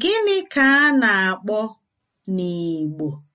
Gịnị ka a na-akpọ n'Igbo?